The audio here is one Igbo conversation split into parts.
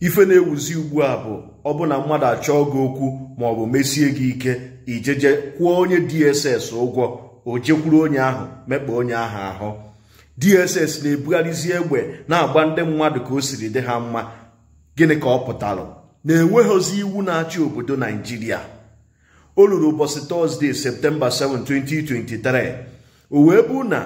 ife na-ewuzi ugbu a bụ ọbụna mmadụ achọọ gị okwu maọbụ mesie gị ike ijeje kwụọ onye dss ụgwọ o jekwuru onye ahụ mekpa onye ahụ ahụ dss na-ebugharịzi egbe na-agba ndị mmadụ ka o siri dị ha mma gịnị ka ọ pụtara na-enweghịzi iwu na-achị obodo naijiria o ruru ụbọchị tọzdee septemba 7 2023 o wee bụ na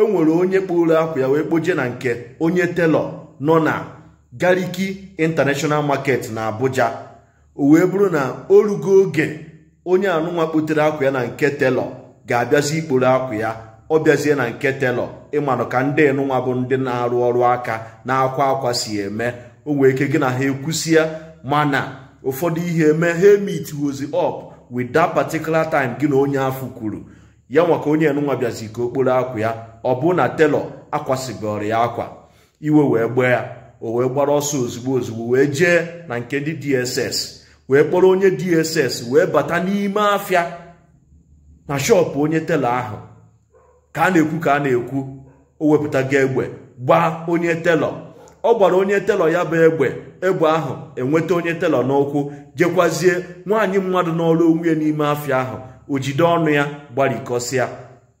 enwere onye kporo akwa ya wee kpoje na nke onye telọ nọ na gariki international market na abuja o wee bụrụ na o rugo oge onye anụnwa kpotere akwa ya na nke telọ ga-abịazi ikporo akwa ya ọ bịazie na nke telọ ịmanụ ka ndị nụnwa bụ ndị na-arụ ọrụ aka na-akwa akwa si eme o wee ike gị na ha ekwusia mana ụfọdụ ihe eme ha emit wozi up with that particular time gị na onye afụ kwuru ya nwa onye nụnwa bịazi ka okporo akwa ya ọ bụ na telọ akwasịgoro ya akwa iwe wee gbee ya o wee gbara ọsọ ozugbo ozugbo wee jee na nke ndị dss wee kpọrọ onye dss wee bata n'ime afịa na shọpụ onye tela ahụ ka a na-ekwu ka a na-ekwu o wepụtago egbe gbaa onye telọ ọ gbara onye telọ ya bụ egbe egbe ahụ enweta onye telọ n'ụkwụ jekwazie nwaanyị mmadụ n'ọrụ onwe n'ime afịa ahụ o jide ọnụ ya gbarikọsịa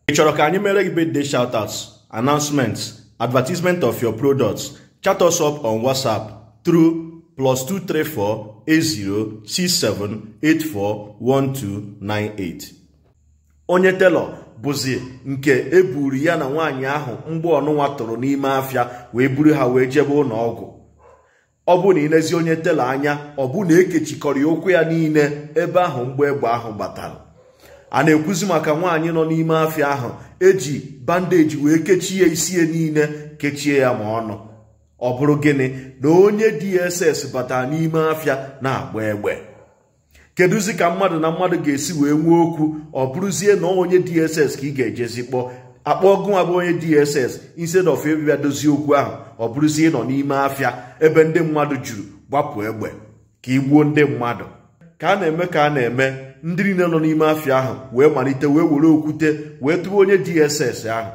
ị chọrọ ka anyị mere gị birthday shoutouts announcements advertisement of your products chat us up on WhatsApp through plus 234 80 1298. onye telọ bụzi nke e buru ya na nwaanyị ahụ mgbe ọnụnwa tụrụ n'ime afịa wee buru ha wee jebe ụlọ ọgụ ọ bụ na ịnezi onye telọ anya ọ bụ na ekechikọrọ ya ụkwụ ya niile ebe ahụ mgbe egbe ahụ gbatara a na-ekwuzi maka nwaanyị nọ n'ime afịa ahụ eji bandeji wee kechie isi ya niile kechie ya ma ọnụ ọ bụrụ gịnị na onye dss batara n'ime afịa na-agba egbe kedụzi ka mmadụ na mmadụ ga-esi wee nwee okwu ọ bụrụzie na onye dss ka ị ga-ejezi kpọọ akpọ gụnwa bụ onye dss instead of ịbịa dozie okwu ahụ ọ bụrụzie nọ n'ime afịa ebe ndị mmadụ juru gbapụ egbe ka gbuo ndị mmadụ ka a na-eme ka a na-eme ndị niile nọ n'ime afịa ahụ wee malite wee were okwute wee tụwa onye dss ahụ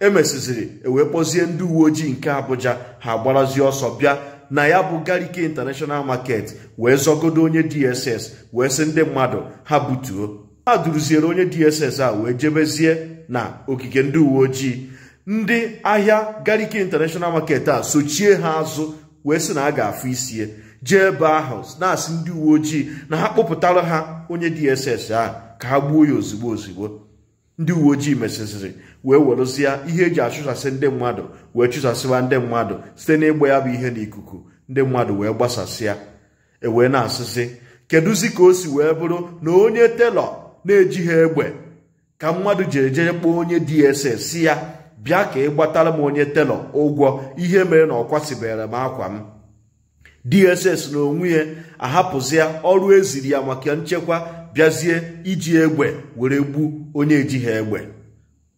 emesiziri ewee kpozie ndị uwe ojii nke Abuja ha gbarazie ọsọ bịa na ya bụ Garike International Market wee zọgodo onye DSS wee sị ndị mmadụ ha butuo ha duruziere onye DSS a wee jebezie na ogige ndị uwe ojii ndị ahịa Garike International Market a sochie ha azụ wee sị na a ga-afụ isie jee ebe ahụ na-asị ndị uwe ojii na ha kpụpụtara ha onye DSS a ka ha gbuo ya ozigbo ozigbo ndị uwe ojii mesịsịrị wee werụzie ihe eji achụsasị ndị mmadụ wee chụsasịwa ndị mmadụ site n'ịgba ya bụ ihe n'ikuku ndị mmadụ wee gbasasịa ewee na-asịsị kedụzi ka o si wee bụrụ na onye telọ na-eji ha egbe ka mmadụ jere jere kpọọ onye DSS si ya bịa ka ị gbatara m onye telọ ụgwọ ihe mere na ọ kwasịbere m akwa m DSS na onwe ya ahapụzịa ọrụ eziri ya maka nchekwa bịazie iji egbe were gbu onye ha egbe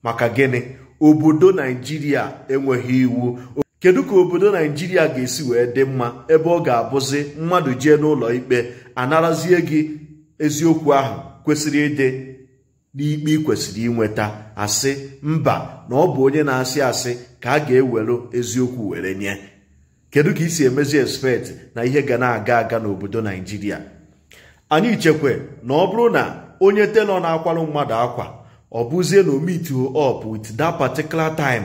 maka gịnị obodo naijiria enweghị iwu kedu ka obodo naijiria ga-esi wee dị mma ebe ọ ga-abụzi mmadụ jee n'ụlọ ikpe anarazie gị eziokwu ahụ kwesịrị ịdị n'ikpe ị kwesịrị inweta asị mba na ọ bụ onye na-asị asị ka a ga-ewere eziokwu were nye kedu ka ị si emezi expect na ihe ga na-aga aga n'obodo naijiria anyị chekwe na ọ bụrụ na onye telọ na-akwarụ mmadụ akwa ọ bụzie na omit up with that particular time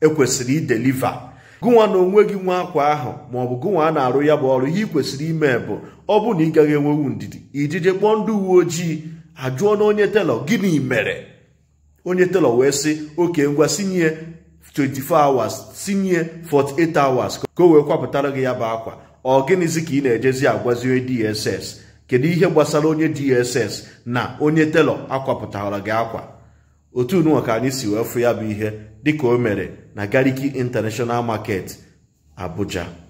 ekwesịrị ideliva gụnwa na onwe gị nwa akwa ahụ maọbụ gụnwa a na-arụ ya bụ ọrụ ihe ị kwesịrị ime bụ ọ bụ na ị gaghị enwewu ndidi ijije kpọọ ndị uwe ojii ajụọ na onye telọ gịnị mere onye telọ wee sị oke ngwa sinye 24 hours sinye 48 hours ka o wee kwapụtara gị ya bụ akwa ọ gịnịzi ka ị na-ejezi agwazie DSS kedu ihe gbasara onye DSS na onye telọ akwapụtara gị akwa otu n'ụwa ka anyị si wee fụ ya bụ ihe dịka o mere na Gariki International Market Abuja